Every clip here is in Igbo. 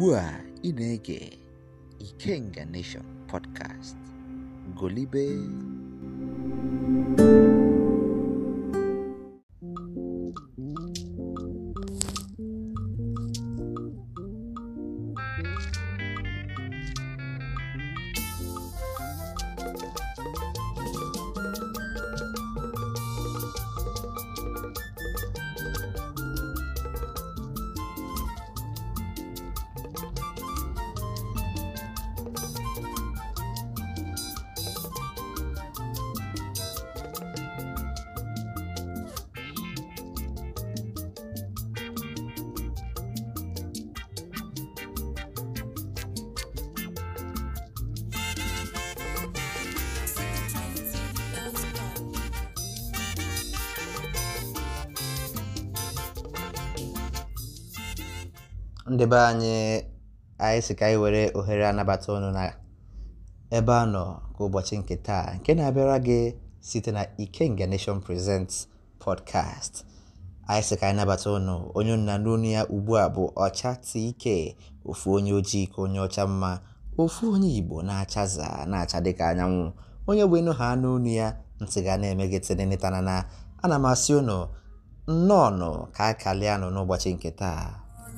ugbu a ị na-ege Ikenga Nation podcast golibe ndị be anyị anyị si ka anyị were ohere anabata ọnụ na ebe a nọ ka ụbọchị nke taa nke na-abịara gị site na Ikenga Nation present podcast anyị si ka anyị nabata ọnụ onye nna n'onu ya ugbu a bụ Ọcha ike ofu onye ojii ka onye ọcha mma ofu onye Igbo na-achaza na-acha dịka anyanwụ onye bụ ịnụ ha n'onu ya ntị ga na-eme tịnịnịtanana ana m asị ụnụ nnọọ nọ ka a kalịa n'ụbọchị nke taa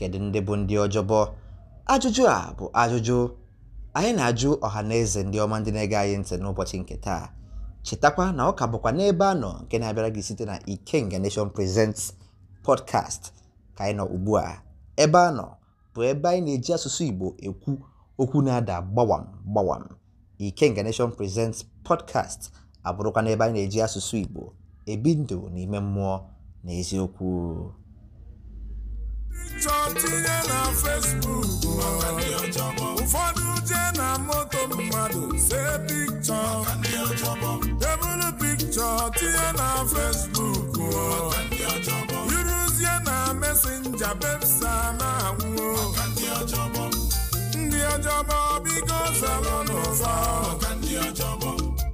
Kedu ndị bụ ndị ọjọbọ? Ajụjụ a bụ ajụjụ anyị na-ajụ ọha na eze ndị ọma ndị na-ege anyị ntị n'ụbọchị nke taa. Chetakwa na ọ ka bụkwa n'ebe a nọ nke na-abịara gị site na Ikenga Nation Presents podcast ka anyị nọ ugbu a. Ebe a nọ bụ ebe anyị na-eji asụsụ Igbo ekwu okwu na-ada gbawam gbawam. Ikenga Nation Presents podcast abụrụkwa n'ebe anyị na-eji asụsụ Igbo ebi ndụ n'ime mmụọ na eziokwu Picture tinye na Facebook ụfọdụ jee na moto mmadụ see picture. debụrụ picture tinye na Facebook yuruzie na mesenja bepsa na-anwụ ndị ọjọbọ bigo zara n'ụzọ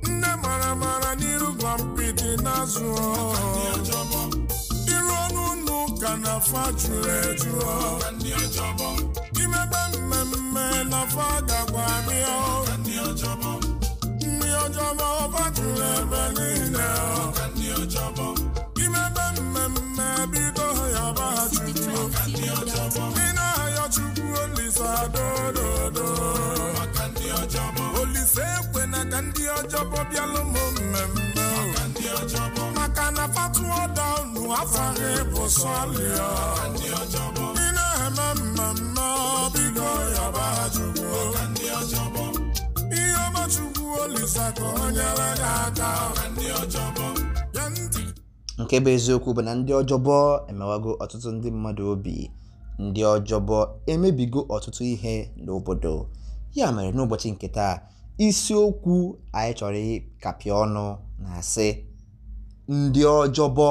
nne mara mara n'iru gwa na ka na afọ juru eju imebe mmemme na afọ gakwa ndị ọjọbọ ọba juru ebe niile imebe mmemme bido ya ba chukwu ị na-ayọ chukwu olise adododo olise ekwe na ka ndị ọjọbọ bịalụ m mmemme maka na fatuoda unu afaghị bụ sọlịa ị na-eme mmemme ọbigo yaba jụgo ihe ọmachukwu olisa ka o nyere ya aka nke bụ eziokwu bụ na ndị ọjọbọ emewago ọtụtụ ndị mmadụ obi ndị ọjọbọ emebigo ọtụtụ ihe n'obodo ya mere n'ụbọchị nke taa isiokwu anyị chọrọ ịkapịa ọnụ na-asị ndị ọjọbọ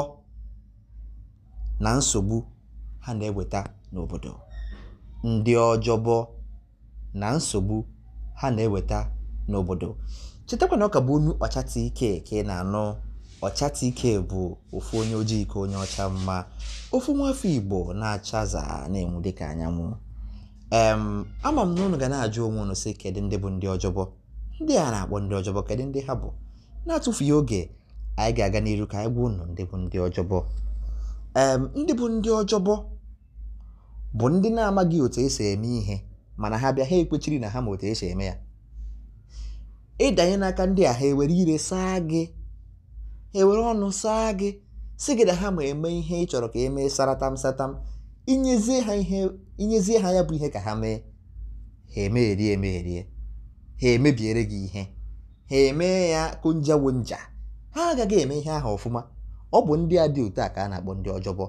na nsogbu ha na-eweta n'obodo ndị ọjọbọ na nsogbu ha na-eweta n'obodo ka bụ onu Ọcha TK ka ị na-anụ Ọcha ike bụ ofu onye ojii ka onye ọcha mma ofu nwafọ Igbo na-achaza na-enwu dịka anyanwụ em ama m na unu ga na-ajụ onwe unu sị kedu ndị bụ ndị ọjọbọ ndị a na-akpọ ndị ọjọbọ kedu ndị ha bụ na-atụfughị oge anyị ga-aga n'iru ka anyị gwa ụnụ ndị bụ ndị ọjọbọ ee ndị bụ ndị ọjọbọ bụ ndị na-amaghị otu esi eme ihe mana ha bịa ha ekwechiri na ha ma otu esi eme ya ịdanye n'aka ndị a ha ewere ire saa gị ewere ọnụ saa gị si gị na ha ma eme ihe ị chọrọ ka e mee saratam satam inyezie ha ihe inyezie ha ya bụ ihe ka ha mee ha emegherie emegherie ha emebiere gị ihe ha emee ya konjawo nja ha agaghị eme ihe ahụ ọfụma ọ bụ ndị a dị otu a ka a na-akpọ ndị ọjọbọ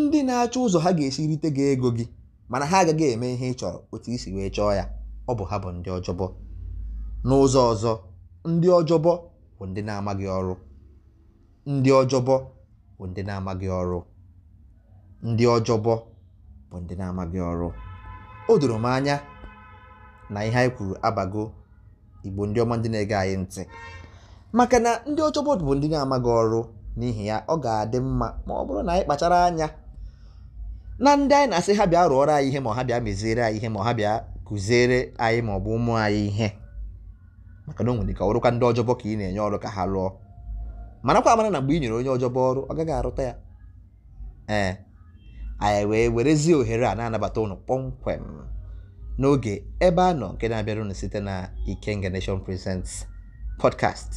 ndị na-achọ ụzọ ha ga-esi rite gị ego gị mana ha agaghị eme ihe ị chọrọ otu isi wee chọọ ya ọ bụ ha bụ ndị ọjọbọ n'ụzọ ọzọ ndị ọjọbọ bụ ndị na-amaghị ọrụ ndị ọjọbọ bụ ndị na-amaghị ọrụ ndị ọjọbọ bụ ndị na-amaghị ọrụ o doro m anya na ihe anyị kwuru abago igbo ndị ọma ndị na-ege anyị ntị maka na ndị ọjọbọ bọọdụ bụ ndị na-amaghị ọrụ n'ihi ya ọ ga-adị mma ma ọ bụrụ na anyị kpachara anya na ndị anyị na-asị ha bịa rụọrọ anyị ihe ma ha bịa meziere anyị ihe ma ha bịa kụziere anyị ma ọ bụ ụmụ anyị ihe maka na o nwere ka ọrụkwa ndị ọjọbọ ka ị na-enye ọrụ ka ha lụọ marakwa amara na mgbe ị nyere onye ọjọbọ ọrụ ọ gaghị arụta ya ee anyị wee werezie ohere a na-anabata ụnụ kpọmkwem n'oge ebe a nọ nke na-abịara site na ike Nation Presents podcast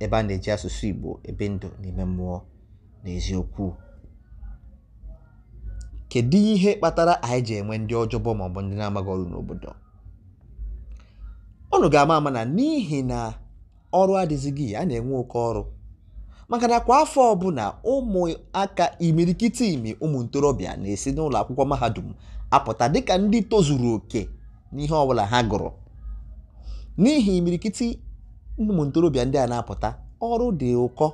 ebe a na-eji asụsụ Igbo ebe ndụ n'ime mmụọ na eziokwu kedu ihe kpatara anyị ji enwe ndị ọjọbọ maọbụ ndị na-amaghị ọrụ n'obodo ọnụ ga-ama ama na n'ihi na ọrụ adịzighị a na-enwe oke ọrụ maka na kwa afọ ọbụla ụmụaka imirikiti imi ụmụ ntorobịa na-esi n'ụlọ akwụkwọ mahadum apụta dịka ndị tozuru oke n'ihe ọbụla ha gụrụ n'ihi imirikiti ụmụ ntorobịa ndị a na-apụta ọrụ dị ụkọ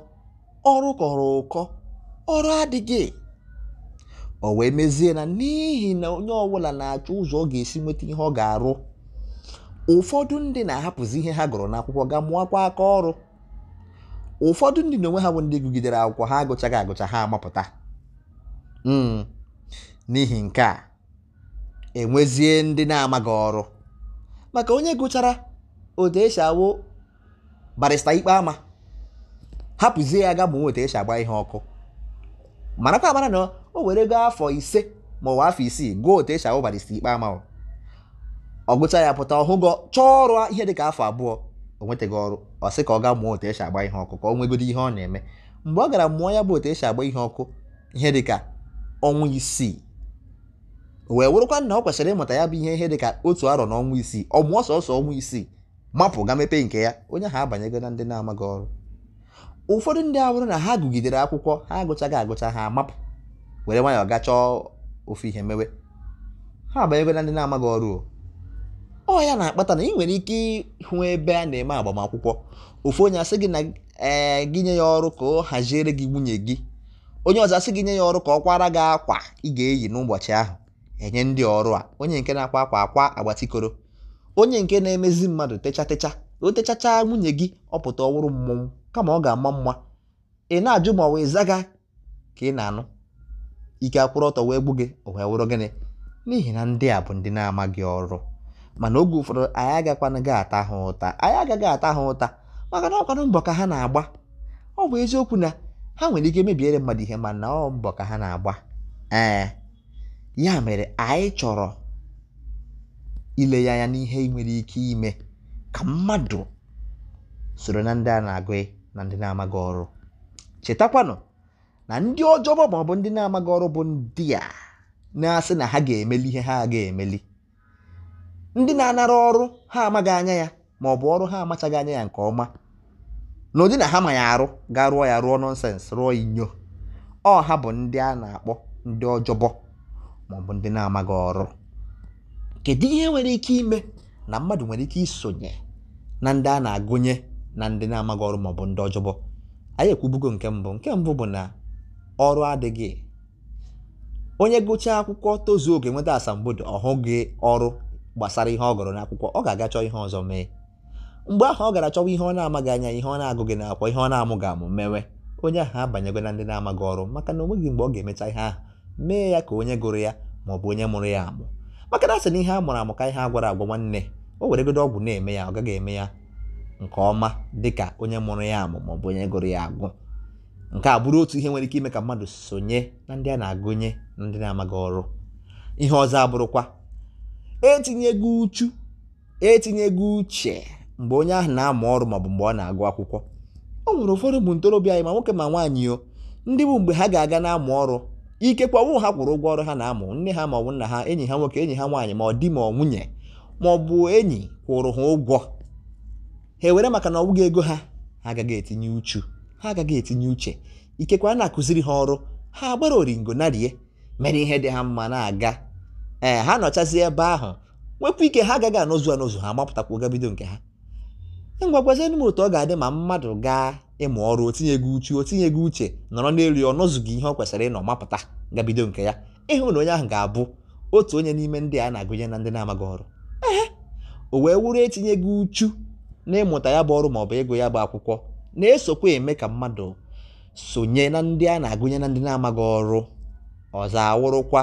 ọrụ kọrọ ụkọ ọrụ adịghị o wee mezie na n'ihi na onye ọbụla na-achọ ụzọ ọ ga-esi nweta ihe ọ ga-arụ ụfọdụ ndị na-ahapụzi ihe ha gụrụ n'akwụkwọ ga mụọkwa aka ọrụ ụfọdụ ndị na onwe ha bụ ndị gụgidere akwụkwọ ha agụchaghị agụcha ha amapụta hmm. n'ihi nke a enwezie ndị na-amaghị ọrụ maka onye gụchara otu esi awụ barista ikpe ama hapụzie ya ga ma nweta e agba ihe ọkụ mana mara na o were go afọ ise ma ọ bụ afọ isii gụọ otu esi ahụ barista ikpe ama ọ gụcha ya pụta ọhụgọ chọọ ọrụ ihe ka afọ abụọ o nwetaghị ọrụ ọ sị ka ọ ga mụọ otu esi agba ihe ọkụ ka ọ nwegoro ihe ọ na-eme mgbe ọ gara mụọ ya bụ otu e agba ihe ọkụ ihe ka ọnwa isii wee wụrụkwa na ọ kwesịrị ịmụta ya bụ ihe ihe dị ka otu arọ na ọnwa isii ọ mụọ sọsọ ọnwa isii mapụ ga mepee nke ya onye ha abanyego na ndị na-amaghị ọrụ ụfọdụ ndị abụrụ na ha gụgidere akwụkwọ ha agụchaghị agụcha ha mapụ were nwayọọ ga chọọ ofu ihe mewe ha abanyego na ndị na-amaghị ọrụ ọ ya na-akpata na ị nwere ike ịhụ ebe a na-eme agbamakwụkwọ ofu onye asị gị na ee eh, gị nye ya ọrụ ka ọ haziere gị nwunye gị onye ọzọ asị gị nye ya ọrụ ka ọ kwara gị akwa ị ga-eyi n'ụbọchị ahụ enye ndị ọrụ a onye nke na-akwa akwa akwa agbatikoro onye nke na-emezi mmadụ techatecha o techachaa nwunye gị ọ pụta ọwụrụ mmọnwụ kama ọ ga-ama mma ị na-ajụ ma ọ wee zaga ka ị na-anụ ike akwụrụ ọtọ wee gbu gị o wee wụrụ gịnị n'ihi na ndị a bụ ndị na-amaghị ọrụ mana oge ụfọdụ anyị agakwanagị ata ha ụta anyị agaghị ata ha ụta maka na ọkwanụ mbọ ka ha na-agba ọ bụ eziokwu na ha nwere ike mebiere mmadụ ihe mana ọ mbọ ka ha na-agba ee ya mere anyị chọrọ ile ya anya n'ihe ị nwere ike ime ka mmadụ soro na ndị a na-agụ na ndị na-amaghị ọrụ chetakwanụ na ndị ọjọbọ maọbụ ndị na-amaghị ọrụ bụ ndị a na-asị na ha ga-emeli ihe ha ga-emeli ndị na-anara ọrụ ha amaghị anya ya ma ọ bụ ọrụ ha amachaghị anya ya nke ọma na ụdị na ha ma ya arụ gaa rụọ ya rụọ nọnsens rụọ inyo ọ ha bụ ndị a na-akpọ ndị ọjọbọ maọbụ ndị na-amaghị ọrụ kedu ihe nwere ike ime na mmadụ nwere ike isonye na ndị a na-agụnye na ndị na-amaghị ọrụ maọbụ ndị ọjọbọ anyị ekwubugo nke mbụ nke mbụ bụ na ọrụ adịghị onye gụchaa akwụkwọ tozuo oge nweta asambodo ọhụghị ọrụ gbasara ihe ọ gụrụ n'akwụkwọ ọ ga-aga chọọ ihe ọzọ mee mgbe ahụ ọ gara chọwa ihe ọ na-amaghị anya ihe ọ na-agụghị n'akwụkwọ ihe ọ na-amụghị amụ mewe onye ahụ abanyego na ndị na-amaghị ọrụ maka na o nweghị mgbe ọ ga-emecha ihe ahụ mee ya ka onye gụrụ ya maọbụ onye mụrụ ya amụ maka na asị ihe a mụrụ amụ ka ihe a gwara agwa nwanne o weregodo ọgwụ na-eme ya ọ gaghị eme ya nke ọma dịka onye mụrụ ya amụ ma ọ bụ onye gụrụ ya agụ nke a bụrụ otu ihe nwere ike ime ka mmadụ sonye na ndị a na-agụnye na ndị na-amaghị ọrụ ihe ọzọ abụrụkwa etinyego uchu etinyego uche mgbe onye ahụ na-amụ ọrụ maọbụ mgbe ọ na-agụ akwụkwọ o nwere ụfọdụ bụ ntorobịa anyị ma nwoke ma nwaanyị o ndị bụ mgbe ha ga-aga na-amụ ọrụ ikekwe ọnwụ ha kwụrụ ụgwọ ọrụ ha na-amụ nne ha ma ọ bụ nna ha enyi ha nwoke enyi ha nwaanyị ma ọ di ma ọ nwunye ma ọ bụ enyi kwụrụ ha ụgwọ ha ewere maka na ọbụghị ego ha ha agaghị etinye uchu ha agaghị etinye uche ikekwe a na-akụziri ha ọrụ ha agbara oringo narie mere ihe dị ha mma na-aga ee ha nọchazi ebe ahụ wepụ ike ha agaghị anọzu anọzu ha mapụtakwa gabido nke ha ngwagwazienụ m otu ọ ga-adị ma mmadụ gaa ịmụ ọrụ otinyego uchu otinye tinyego uche nọrọ n'elu ya ọnụzụghị ihe ọ kwesịrị ịnọ mapụta gabido nke ya ịhụ na onye ahụ ga-abụ otu onye n'ime ndị a na-agụnye na ndị na-amaghị ọrụ ehe o wee wuru etinyego uchu n'ịmụta ya bụ ọrụ maọbụ ịgụ ya bụ akwụkwọ na-esokwa eme ka mmadụ sonye na ndị a na-agụnye na ndị na-amaghị ọrụ ọzọ awụrụkwa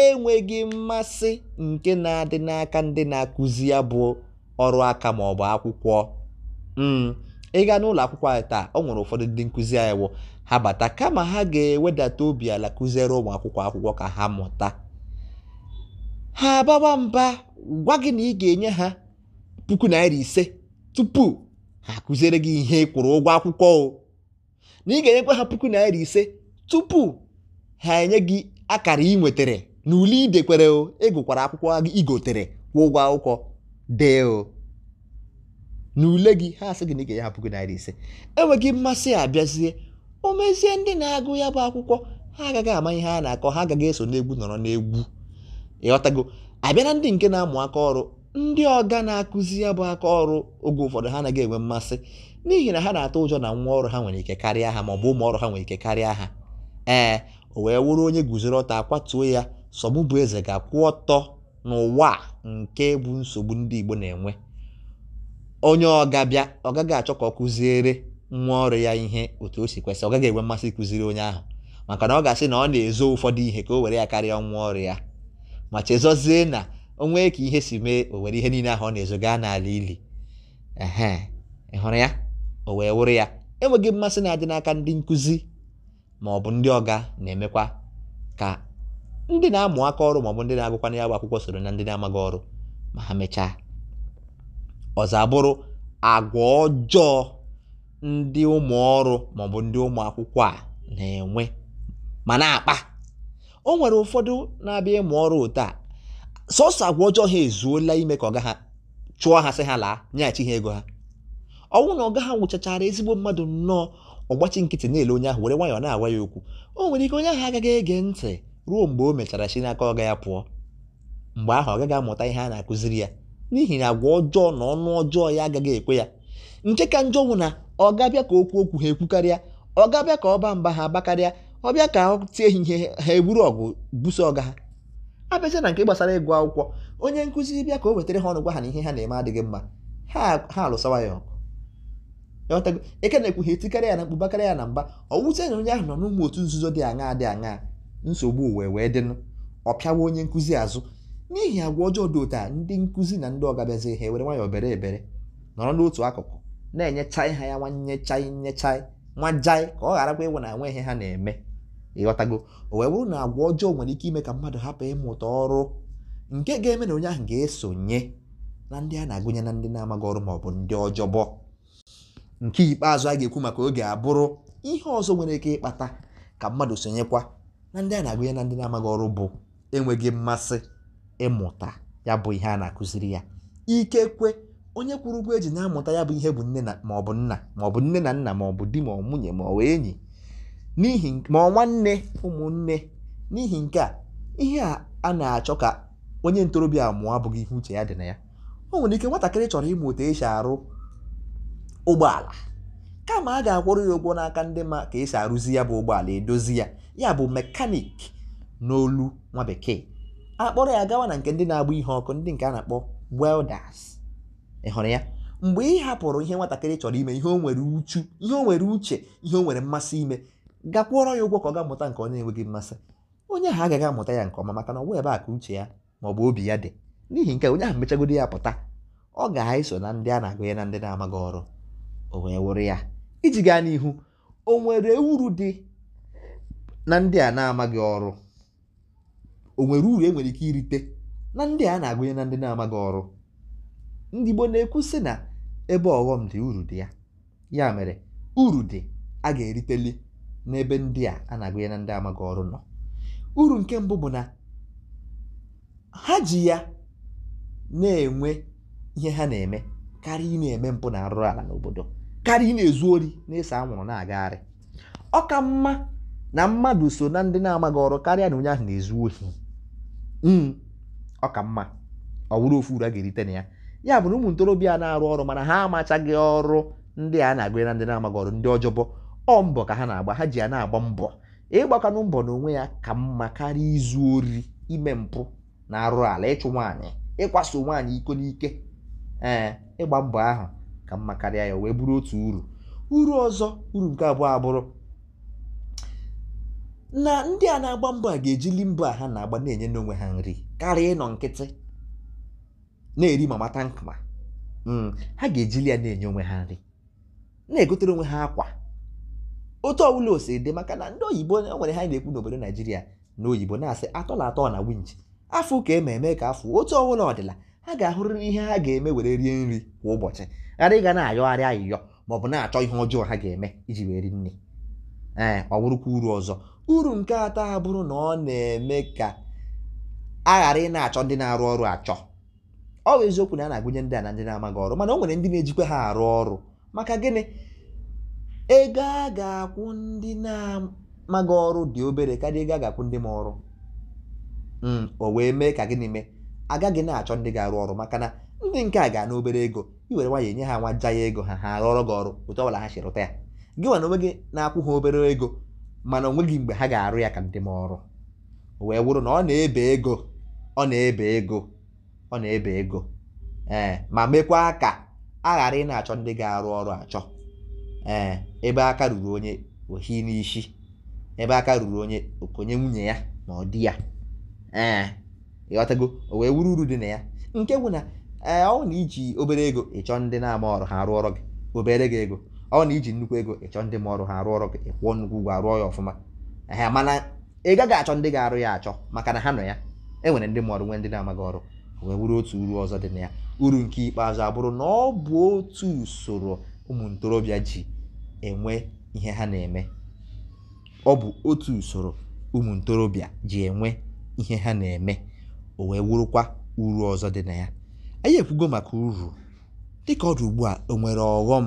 enweghị mmasị nke na-adị n'aka ndị na-akụzi ya bụ ọrụ aka maọbụ akwụkwọ hmm. ị gaa n'ụlọ akwụkwọ anyị taa ọ nwere ụfọdụ ndị nkụzi anyị wụ ha bata kama ha ga-ewedata obi ala kụziere ụmụ akwụkwọ akwụkwọ ka ha mụta ha abawa mba gwa gị na ị ga-enye ha puku naira ise tupu ha kụziere gị ihe ịkwụrụ kwụrụ ụgwọ akwụkwọ o na ị ga-enyekwa ha puku naira ise tupu ha enye gị akara ị nwetara na ule idekwere o ịgụkwara e akwụkwọ igotere kwụọ ụgwọ akwụkwọ dee o na ule gị ha asị gị na ị ga-enye gị puku naira ise enweghị mmasị abịazie o mezie ndị na-agụ ya bụ akwụkwọ ha agaghị ama ihe a na-akọ ha agaghị eso n'egwu nọrọ n'egwu ịghọtago abịa na ndị nke na-amụ aka ọrụ ndị ọga na-akụzi ya bụ aka ọrụ oge ụfọdụ ha anaghị enwe mmasị n'ihi na ha na-atụ ụjọ na nwa ọrụ ha nwere ike karịa ha maọbụ ụmụ ọrụ ha nwere ike karịa ha ee o wee wụrụ onye guzoro ọta akwatuo ya sọgbụ bụ eze ga-akwụ ọtọ n'ụwa nke bụ nsogbu ndị Igbo na-enwe onye ọgabịa ọ gaghị achọ ka ọ kụziere nwa ọrụ ya ihe otu o si kwesị ọ gaghị enwe mmasị ịkụziri onye ahụ maka na ọ ga-asị na ọ na-ezo ụfọdụ ihe ka o were ya karịa nwa ọrụ ya ma chezọzie na o nwee ka ihe si mee o were ihe niile ahụ ọ na-ezo gaa n'ala ili ehe ị hụrụ ya o wee wụrụ ya enweghị mmasị na-adị n'aka ndị nkụzi ma ọ bụ ndị ọga na-emekwa ka ndị na-amụ aka ọrụ ma ọ bụ ndị na-agụkwana ya bụ akwụkwọ soro na ndị na-amaghị ọrụ ma ha mechaa ọzọ bụrụ agwa ọjọọ ndị ụmụ ọrụ maọbụ ndị ụmụ akwụkwọ a na-enwe ma na-akpa o nwere ụfọdụ na-abịa ịmụ ọrụ otu a sọsọ agwa ọjọọ ha ezuola ime ka ọga ha chụọ ha sị ha laa nyeghachi ha ego ha ọnwụ na ọga ha nwụchachara ezigbo mmadụ nnọọ ọgbachi nkịtị na-ele onye ahụ were nwayọọ na-agwa ya okwu o nwere ike onye ahụ agaghị ege ntị ruo mgbe o mechara si n'aka ọga ya pụọ mgbe ahụ ọ gaghị amụta ihe a na-akụziri ya n'ihi na agwa ọjọọ na ọnụ ọjọọ ya agaghị ekwe ya nke ka njọ bụ na ọ ga ka okwu okwu ha ekwukarịa ọ ga ka ka ba mba ha agbakarịa ọbịa ka ọ tie ihe ha eburu ọgụ buso ọga ha abịacha na nke gbasara ịgụ akwụkwọ onye nkụzi bịa ka o wetara ha ọnụ gwa ha na ihe ha na-eme adịghị mma ha alụsawa ya ọgụ eke na-ekwughị etikarị ya na mkpubakarị ya na mba ọwụzie na onye ahụ nọ n'ụmụ otu nzuzo dị aṅa dị aṅa nsogbu wee wee dịnụ ọ pịawa onye nkụzi azụ n'ihi agwa ọjọọ dị ụta ndị nkụzi na ndị ọgabiazi ha ewere nwayọọ bere ebere nọrọ n'otu akụkụ na-enyechai ha ya nwanyechai nyechai jai ka ọ gharakwa ịwụ na enwe ihe ha na-eme ịghọtago o wee bụrụ na agwa ọjọọ nwere ike ime ka mmadụ hapụ ịmụta ọrụ nke ga-eme na onye ahụ ga-esonye na ndị a na-agụnye na ndị na-amaghị ọrụ maọbụ ọ bụ ndị ọjọbọ nke ikpeazụ a ga-ekwu maka oge abụrụ ihe ọzọ nwere ike ịkpata ka mmadụ sonyekwa na ndị a na-agụnye na ndị na-amaghị ọrụ bụ enweghị mmasị ịmụta ya bụ ihe a na-akụziri ya ikekwe onye kwụrụ ụgwọ eji na-amụta ya bụ ihe bụ nne na maọbụ nna maọbụ nne na nna maọbụ di ma ọ nwunye ma ọ enyi n'ihi ma ọ nwanne ụmụnne n'ihi nke a ihe a na-achọ ka onye ntorobịa mụọ abụghị ihe uche ya dị na ya o nwere ike nwatakịrị chọrọ ịmụ otu esi arụ ụgbọala kama a ga-akwụrụ ya ụgwọ n'aka ndị ma ka esi arụzi ya bụ ụgbọala edozi ya ya bụ mekanik n'olu nwa bekee akpọrọ ya gawa na nke ndị na-agba ihe ọkụ ndị nke a na-akpọ welders ị hụrụ ya mgbe ị hapụrụ ihe nwatakịrị chọrọ ime ihe o nwere uchu ihe o nwere uche ihe o nwere mmasị ime gakwụọrọ ya ụgwọ ka ọ ga-amụta nke onye enweghị mmasị onye ahụ agaghị amụta ya nke ọma maka na ọ bụ ebe a ka uche ya ma ọ bụ obi ya dị n'ihi nke onye ahụ mechagodi ya pụta ọ ga-eso na ndị a na ya na ndị na-amaghị ọrụ o wee wụrụ ya iji gaa n'ihu o nwere uru dị na ndị a na-amaghị ọrụ o nwere uru enwere ike irite na ndị a na-agụnye na ndị na-amaghị ọrụ ndị Igbo na-ekwu sị na ebe ọghọm dị uru dị ya ya mere uru dị a ga-eriteli n'ebe ndị a a na-agụnye na ndị amaghị ọrụ nọ uru nke mbụ bụ na ha ji ya na-enwe ihe ha na-eme karịa ị na-eme mpụ na arụrụ ala n'obodo karịa ị na-ezu ori na-ese anwụrụ na-agagharị ọ ka mma na mmadụ so na ndị na-amaghị ọrụ karịa na onye ahụ na-ezu ohi Mm. ọ ka mma ọ bụrụ ofu uru a ga-erite na ya ya bụ na ụmụ ntorobịa na-arụ ọrụ mana ha amachaghị ọrụ ndị a na-agụ na ndị na-amaghị ọrụ ndị ọjọbọ ọ mbọ ka ha na-agba ha ji ya na-agba mbọ ịgbakwanụ mbọ n'onwe ya ka mma karịa izu ori ime mpụ na arụ ala ịchụ nwaanyị ịkwaso nwaanyị iko n'ike ee ịgba mbọ ahụ ka mma karịa ya wee bụrụ otu uru uru ọzọ uru nke abụọ abụrụ na ndị a na-agba mbọ a ga-ejili mbọ a ha na-agba na-enye n'onwe ha nri karịa ịnọ nkịtị na-eri mata tankma mm, ha ga-ejili ya na-enye onwe ha nri na-egotere onwe ha akwa otu ọbụla o dị maka na ndị oyibo o nwere ha na-ekwu n'obodo naijiria na oyibo na-asị atọ na atọ na winji afọ ka eme eme ka afọ otu ọbụla ọdịla ha ga-ahụrịrị ihe ha ga-eme were rie nri kwa ụbọchị ghara ịga na-ayọgharị ayịyọ ma ọ bụ na-achọ ihe ọjọọ ha ga-eme iji wee ri nri ee ọ bụrụkwa uru ọzọ uru nke atọ abụrụ na ọ na-eme ka a ghara ị na-achọ ndị na-arụ ọrụ achọ ọ bụ eziokwu na a na-agụnye ndị a na ndị na-amaghị ọrụ mana o nwere ndị na-ejikwa ha arụ ọrụ maka gịnị ego a ga-akwụ ndị na-amaghị ọrụ dị obere karịa ego a ga-akwụ ndị ma ọrụ hmm, o wee mee ka gịnị mee agaghị na-achọ ndị ga-arụ ọrụ maka na ndị nke a ga obere ego i were nwanyị enye ha nwa ja ya ego ha ha ọrụ gị ọrụ otu ọbụla ha si rụta ya gị nwa na onwe gị na-akwụ ha obere ego mana o nweghị mgbe ha ga-arụ ya ka ndị m ọrụ wee wụrụ na ọ na-ebe ego ọ na-ebe ego ọ na-ebe ego ee ma mekwa ka a ghara ị na-achọ ndị ga-arụ ọrụ achọ ee ebe aka ruru onye ohi n'isi ebe aka ruru onye okonye nwunye ya na ọ dị ya ee ịghọtago o wee wuru uru dị na ya nke bụ na ee ọ na iji obere ego ịchọ ndị na-ama ọrụ ha arụ ọrụ gị obere gị ego ọ na iji nnukwu ego ịchọ ndị ma ọrụ ha arụ ọrụ gị ịkwụọ nnukwu ụgwọ arụọ ya ọfụma Ahịa mana ị gaghị achọ ndị ga-arụ ya achọ maka na ha nọ ya e nwere ndị ma ọrụ nwee ndị na-amaghị ọrụ wee wuru otu uru ọzọ dị na ya uru nke ikpeazụ abụrụ na ọ bụ otu usoro ụmụ ntorobịa ji enwe ihe ha na-eme ọ bụ otu usoro ụmụ ntorobịa ji enwe ihe ha na-eme o wee wurukwa uru ọzọ dị na ya anyị ekwugo maka uru dịka ọ ugbu a o nwere ọghọm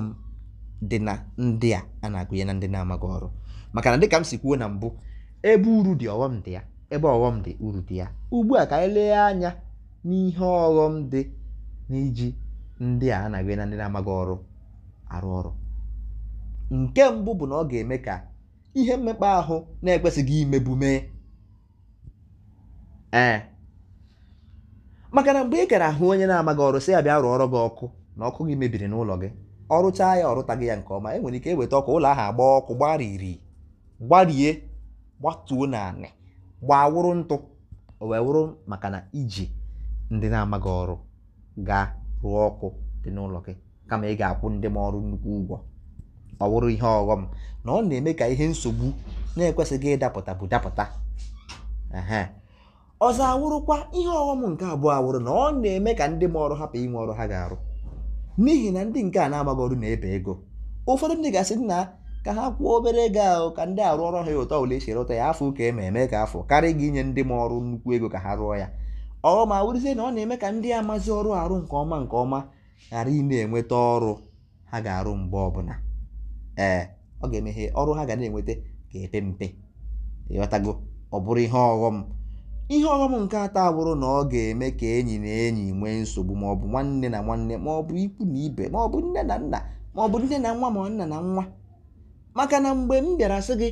dị na ndị a a na-agụnye na ndị na-amaghị ọrụ maka na dịka m si kwuo na mbụ ebe uru dị ọghọm dị ya ebe ọghọm dị uru dị ya ugbu a ka anyị lee anya n'ihe ọghọm dị n'iji ndị a a na-agụnye na ndị na-amaghị ọrụ arụ ọrụ nke mbụ bụ na ọ ga-eme ka ihe mmekpa ahụ na-ekwesịghị imebu mee ee maka na mgbe ị gara ahụ onye na-amaghị ọrụ sị ya bịa rụọ ọrụ gị ọkụ na ọkụ gị mebiri n'ụlọ gị ọrụchaa ya ọrụtaghị ya nke ọma enwere ike eweta ọkụ ụlọ ahụ agba ọkụ gbariri gbarie gbatuo na anị wụrụ ntụ o wee wụrụ maka na iji ndị na-amaghị ọrụ ga rụọ ọkụ dị n'ụlọ gị kama ị ga-akwụ ndị ma ọrụ nnukwu ụgwọ ọ wụrụ ihe ọghọm na ọ na-eme ka ihe nsogbu na-ekwesịghị ịdapụta bụ dapụta ọzọ awụrụkwa ihe ọghọm nke abụọ awụrụ na ọ na-eme ka ndị ma ọrụ hapụ inwe ọrụ ha ga-arụ n'ihi na ndị nke a na-agbaghị ọrụ na-ebe ego ụfọdụ ndị ga-asị na ka ha kwụọ obere ego ahụ ka ndị arụ ọrụ ha ụtọ ole esi rụta ya afọ ụka eme eme ka afọ karịa gị inye ndị ma ọrụ nnukwu ego ka ha rụọ ya ọ ma wụrụzie na ọ na-eme ka ndị amazi ọrụ arụ nke ọma nke ọma ghara ị na-enweta ọrụ ha ga-arụ mgbe ọbụla ee ọ ga-emeghe ọrụ ha ga na-enweta ga-epe mpe ịghọtago ọ bụrụ ihe ọghọm ihe ọghọm nke atọ abụrụ na ọ ga-eme ka enyi na enyi nwee nsogbu maọbụ nwanne na nwanne maọbụ ikwu na ibe maọbụ nne na nna maọbụ nne na nwa ma nna na nwa maka na mgbe m bịara sị gị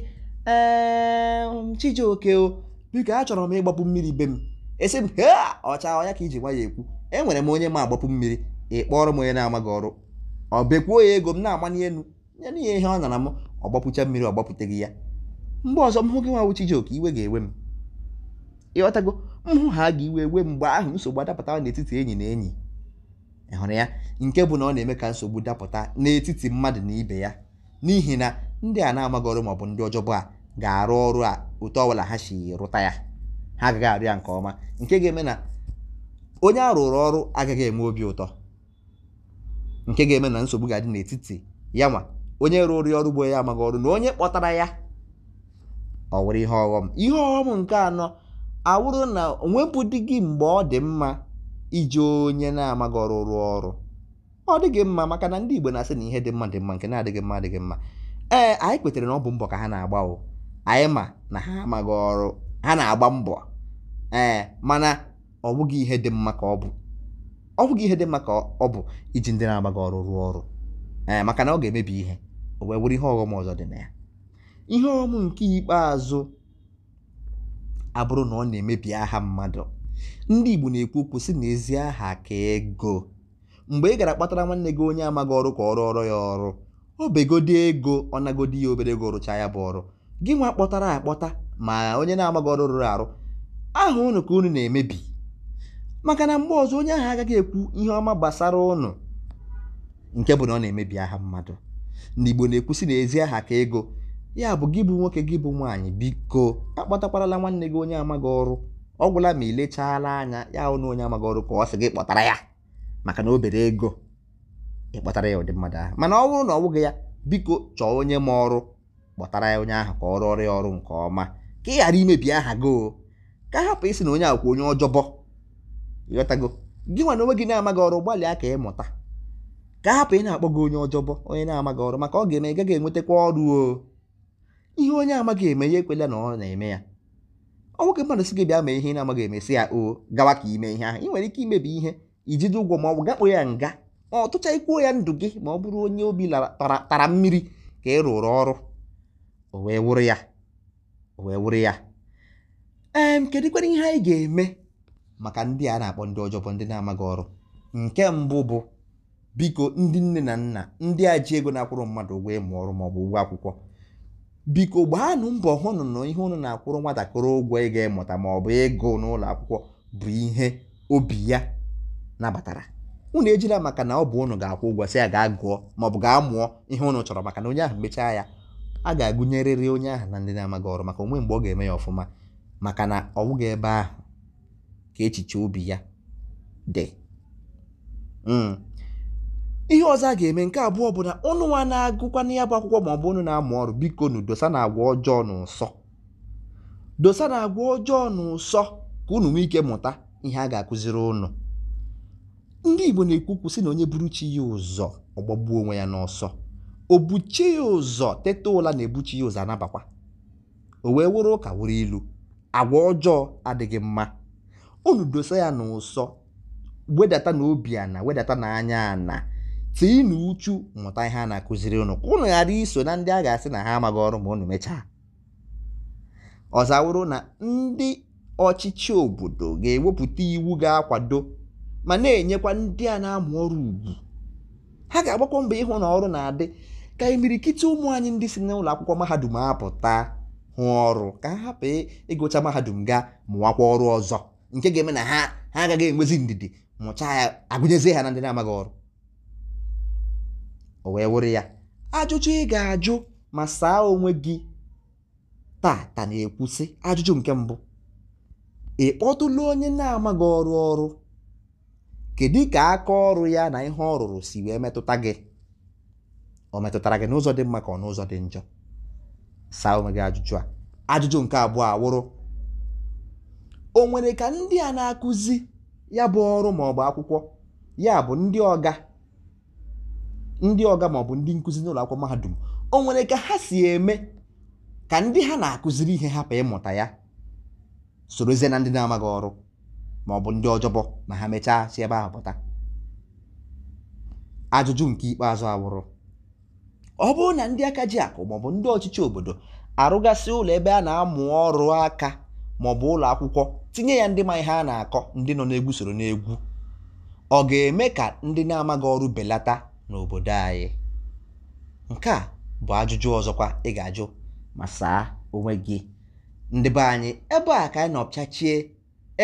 Chijioke o biko achọrọ m ịgbapụ mmiri be m esi m he ọcha ọya ka iji nwa ya ekwu enwere m onye m agbapụ mmiri ị kpọrọ m onye na-amaghị ọrụ ọ bekwuo ya ego m na-amanye elu nye na ihe ọ nara m ọgbapụcha mmiri ọgbapụteghị ya mgbe ọzọ m hụ gị nwa wụ Chijioke iwe ga-ewe m ịghọtago m ha ga iwe wee mgbe ahụ nsogbu adapụta n'etiti enyi na enyi ịhụrụ ya nke bụ na ọ na-eme ka nsogbu dapụta n'etiti mmadụ na ibe ya n'ihi na ndị a na-amaghị ọrụ maọbụ ndị ọjọbụ a ga-arụ ọrụ a otu ọbụla ha si rụta ya ha agaghị arụ ya nke ọma nke ga-eme na onye a rụrụ ọrụ agaghị enwe obi ụtọ nke ga-eme na nsogbu ga-adị n'etiti ya nwa onye rụrụ ya ọrụ bụ onye amaghị ọrụ na onye kpọtara ya ọ were ihe ọghọm ihe ọghọm nke anọ awụrụ na onwebụdị gị mgbe ọ dị mma iji onye na-amaghị ọrụ rụọ ọrụ ọ dịghị mma maka na ndị Igbo na-asị na ihe dị mma dị mma nke na-adịghị mma adịghị mma ee anyị kwetere na ọ bụ mbọ ka ha na-agba o anyị ma na ha amaghị ọrụ ha na-agba mbọ ee mana ọ bụghị ihe dị mma ka ọ bụ ọ bụghị ihe dị mma ka ọ bụ iji ndị na-amaghị ọrụ rụọ ọrụ ee maka na ọ ga-emebi ihe o wee were ihe ọghọm ọzọ dị na ya ihe ọghọm nke ikpeazụ abụrụ na ọ na-emebi aha mmadụ ndị Igbo na-ekwu okwu sị na ezi aha ka ego mgbe ị gara kpatara nwanne gị onye amaghị ọrụ ka ọrụ ọrụ ya ọrụ obegodi ego ọ nagodi ya obere ego rụchaa ya bụ ọrụ gị nwa kpọtara akpọta ma onye na-amaghị ọrụ rụrụ arụ aha ụnụ ka unu na-emebi maka na mgbe ọzọ onye ahụ agaghị ekwu ihe ọma gbasara ụnụ, nke bụ na ọ na-emebi aha mmadụ ndị Igbo na-ekwu sị na ezi aha ka ego ya bụ gị bụ nwoke gị bụ nwaanyị biko akpọtakwarala nwanne gị onye amaghị ọrụ ọ gwụla ma ilechala anya ya hụ na onye amaghị ọrụ ka ọ sị gị kpọtara ya maka na obere ego ịkpọtara ya ụdị mmadụ ahụ mana ọ bụrụ na ọ bụghị ya biko chọọ onye ma ọrụ kpọtara ya onye ahụ ka ọ rụọrọ ya ọrụ nke ọma ka ị ghara imebi aha gị o ka hapụ isi na onye akwụkwọ onye ọjọbọ ịghọtago gị nwa na onwe gị na-amaghị ọrụ gbalịa ka ị mụta ka hapụ ị na-akpọ gị onye ọjọbọ onye na-amaghị ọrụ maka ọ ga-eme ị gaghị enwetakwa ọrụ oo ihe onye amaghị eme ya ekwela na ọ na-eme ya ọ nwoke mmadụ sị gị bịa mee ihe ị na-amaghị emesi ya o gawa ka ime ihe ahụ ị nwere ike imebi ihe ijide ụgwọ ma ọ bụ gakpo ya nga ma ọ tụcha ikwuo ya ndụ gị ma ọ bụrụ onye obi tara mmiri ka ị rụrụ ọrụ o wee wụrụ ya o wee wụrụ ya ee kedụkwara ihe anyị ga-eme maka ndị a na-akpọ ndị bụ ndị na-amaghị ọrụ nke mbụ bụ biko ndị nne na nna ndị a ji ego na-akwụrụ mmadụ ụgwọ ịmụ ọrụ ma ọ bụ ụgwọ akwụkwọ biko gbaanụ mbọ hụnụ na ihe ụnụ na-akwụrụ nwatakịrị ụgwọ ịga ịmụta ma ọ bụ ịgụ n'ụlọ akwụkwọ bụ ihe obi ya nabatara unu ejila maka na ọ bụ ụnụ ga-akwụ ụgwọ sị ya gaa gụọ maọbụ ga mụọ ihe ụnụ chọrọ maka na onye ahụ mechaa ya a ga-agụnyerịrị onye ahụ na ndị na-amaghị ọrụ maka onwe mgbe ọ ga-eme ya ọfụma maka na ọ bụghị ebe ahụ ka echiche obi ya dị hmm. ihe ọzọ a ga-eme nke abụọ bụ na ụnụnwa na-agụkwa na ya bụ akwụkwọ ma ọ bụ unu na-amụ ọrụ biko nu dosa na agwa ọjọọ na ụsọ dosa na agwa ọjọọ na ụsọ ka unu nwee ike mụta ihe a ga-akụziri ụnụ. ndị Igbo na ekwu kwụsị na onye buru chi ya ụzọ ọgbagbuo onwe ya n'ọsọ o buchie ya ụzọ teta ụla na-ebuchi ya ụzọ anabakwa o wee wụrụ ụka wụrụ ilu agwa ọjọọ adịghị mma unu dosa ya n'ụsọ wedata na obi ana wedata na anya ana tii na uchu mụta ihe a na-akụziri ụnụ ka unu ghara iso na ndị a ga-asị na ha amaghị ọrụ ma ụnụ mechaa ọzawụrụ na ndị ọchịchị obodo ga-ewepụta iwu ga-akwado ma na-enyekwa ndị a na-amụ ọrụ ugwu ha ga-agbakwa mba ịhụ na ọrụ na-adị ka imirikiti ụmụ anyị ndị si n'ụlọ akwụkwọ mahadum apụta hụ ọrụ ka ha hapụ ịgụcha mahadum ga mụwakwa ọrụ ọzọ nke ga-eme na ha agaghị enwezi ndidi mụcha ya agụnyezie ha na ndị na-amaghị ọrụ o wee wụrụ ya ajụjụ ị ga-ajụ ma saa onwe gị taa tata na-ekwusị ajụjụ nke mbụ ị kpọtụla onye na-amaghị ọrụ ọrụ kedu ka aka ọrụ ya na ihe ọ rụrụ si wee metụta gị O metụtara gị n'ụzọ dị mma ka ọ n'ụzọ dị njọ saa onwe gị ajụjụ a ajụjụ nke abụọ awụrụ o nwere ka ndị a na-akụzi ya bụ ọrụ ma ọ bụ akwụkwọ ya bụ ndị ọga ndị ọga maọbụ ndị nkụzi n'ụlọ akwụkwọ mahadum o nwere ka ha si eme ka ndị ha na-akụziri ihe hapụ ịmụta ya sorozie na ndị na-amaghị ọrụ maọbụ ndị ọjọbọ ma ha mechaa si ebe ahụ pụta ajụjụ nke ikpeazụ awụrụ ọ bụrụ na ndị aka ji akụ maọbụ ndị ọchịchị obodo arụgasị ụlọ ebe a na-amụ ọrụ aka maọbụ ụlọ akwụkwọ tinye ya ndị ma ihe a na-akọ ndị nọ n'egwu soro n'egwu ọ ga-eme ka ndị na-amaghị ọrụ belata n'obodo anyị nke a bụ ajụjụ ọzọkwa ị ga-ajụ ma saa onwe gị ndị be anyị ebe a ka anyị nọ pịachie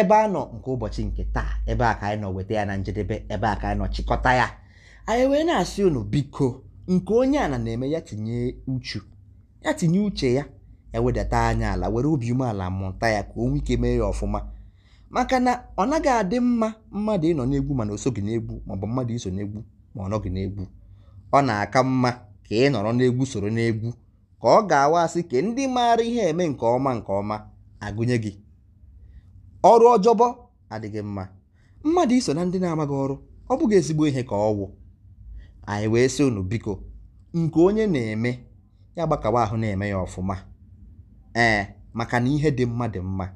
ebe a nọ nke ụbọchị nke taa ebe a ka anyị nọ weta ya na njedebe ebe a ka anyị nọ chịkọta ya anyị wee na-asị unu biko nke onye a na na-eme ya tinye uchu ya tinye uche ya ewedata anya ala were obi umeala mụta ya ka o nwee ike mee ya ọfụma maka na ọ naghị adị mma mmadụ ịnọ n'egwu mana o soghị n'egwu maọbụ mmadụ iso n'egwu ma ọ nọghị n'egwu ọ na-aka mma ka ị nọrọ n'egwu soro n'egwu ka ọ ga-awa asị ka ndị maara ihe eme nke ọma nke ọma agụnye gị ọrụ ọjọbọ adịghị mma mmadụ iso na ndị na-amaghị ọrụ ọ bụghị ezigbo ihe ka ọ wụ anyị wee sị unu biko nke onye na-eme ya gbakawa ahụ na-eme ya ọfụma ee maka na ihe dị mma dị mma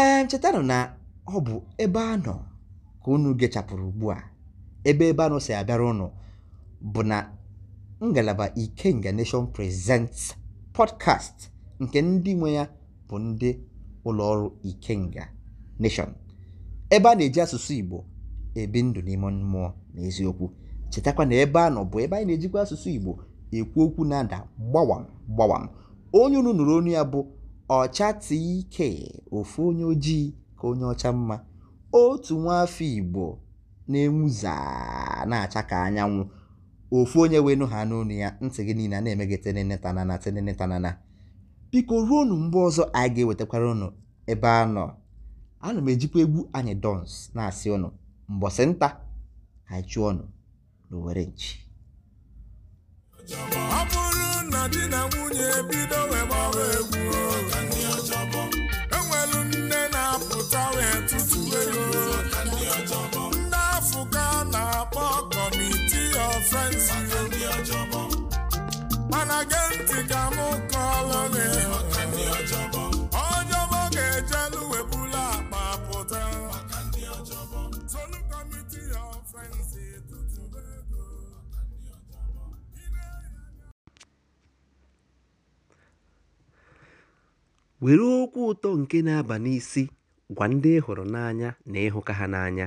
ee chetanụ na ọ bụ ebe a nọ ka unu gechapụrụ ugbu a ebe ebe anọ si abịara ụnụ bụ na ngalaba Ikenga Nation Presents podcast nke ndị nwe ya bụ ndị ụlọọrụ Ikenga Nation ebe a na-eji asụsụ Igbo ebi ndụ n'ime mmụọ n'eziokwu chetakwa na ebe a nọ bụ ebe anyị na-ejikwa asụsụ Igbo ekwu okwu na-ada gbawam gbawam onye unu nụrụ onu ya bụ ọcha tike ofu onye ojii ka onye ọcha mma otu nwa afọ Igbo na-enwu na-acha ka anyanwụ ofu onye wenu ha n'onu ya ntị gị niile a na-emegị tenentanana tenentanana biko ruo unu mgbe ọzọ anyị ga-ewetakwara unu ebe a nọ ana m ejikwa egwu anyị dons na-asị ụnụ mbọsị nta anyị chụọ ọnụ n'owere na-akpọ kọmitii of friendship mana gee ntị ka m kọọlụ gị ọjọbọ ga-ejelu webula akpa pụta solu kọmitii of friendship were okwu ụtọ nke na-aba n'isi gwa ndị ị hụrụ n'anya na ịhụka ha n'anya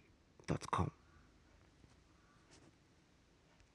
com.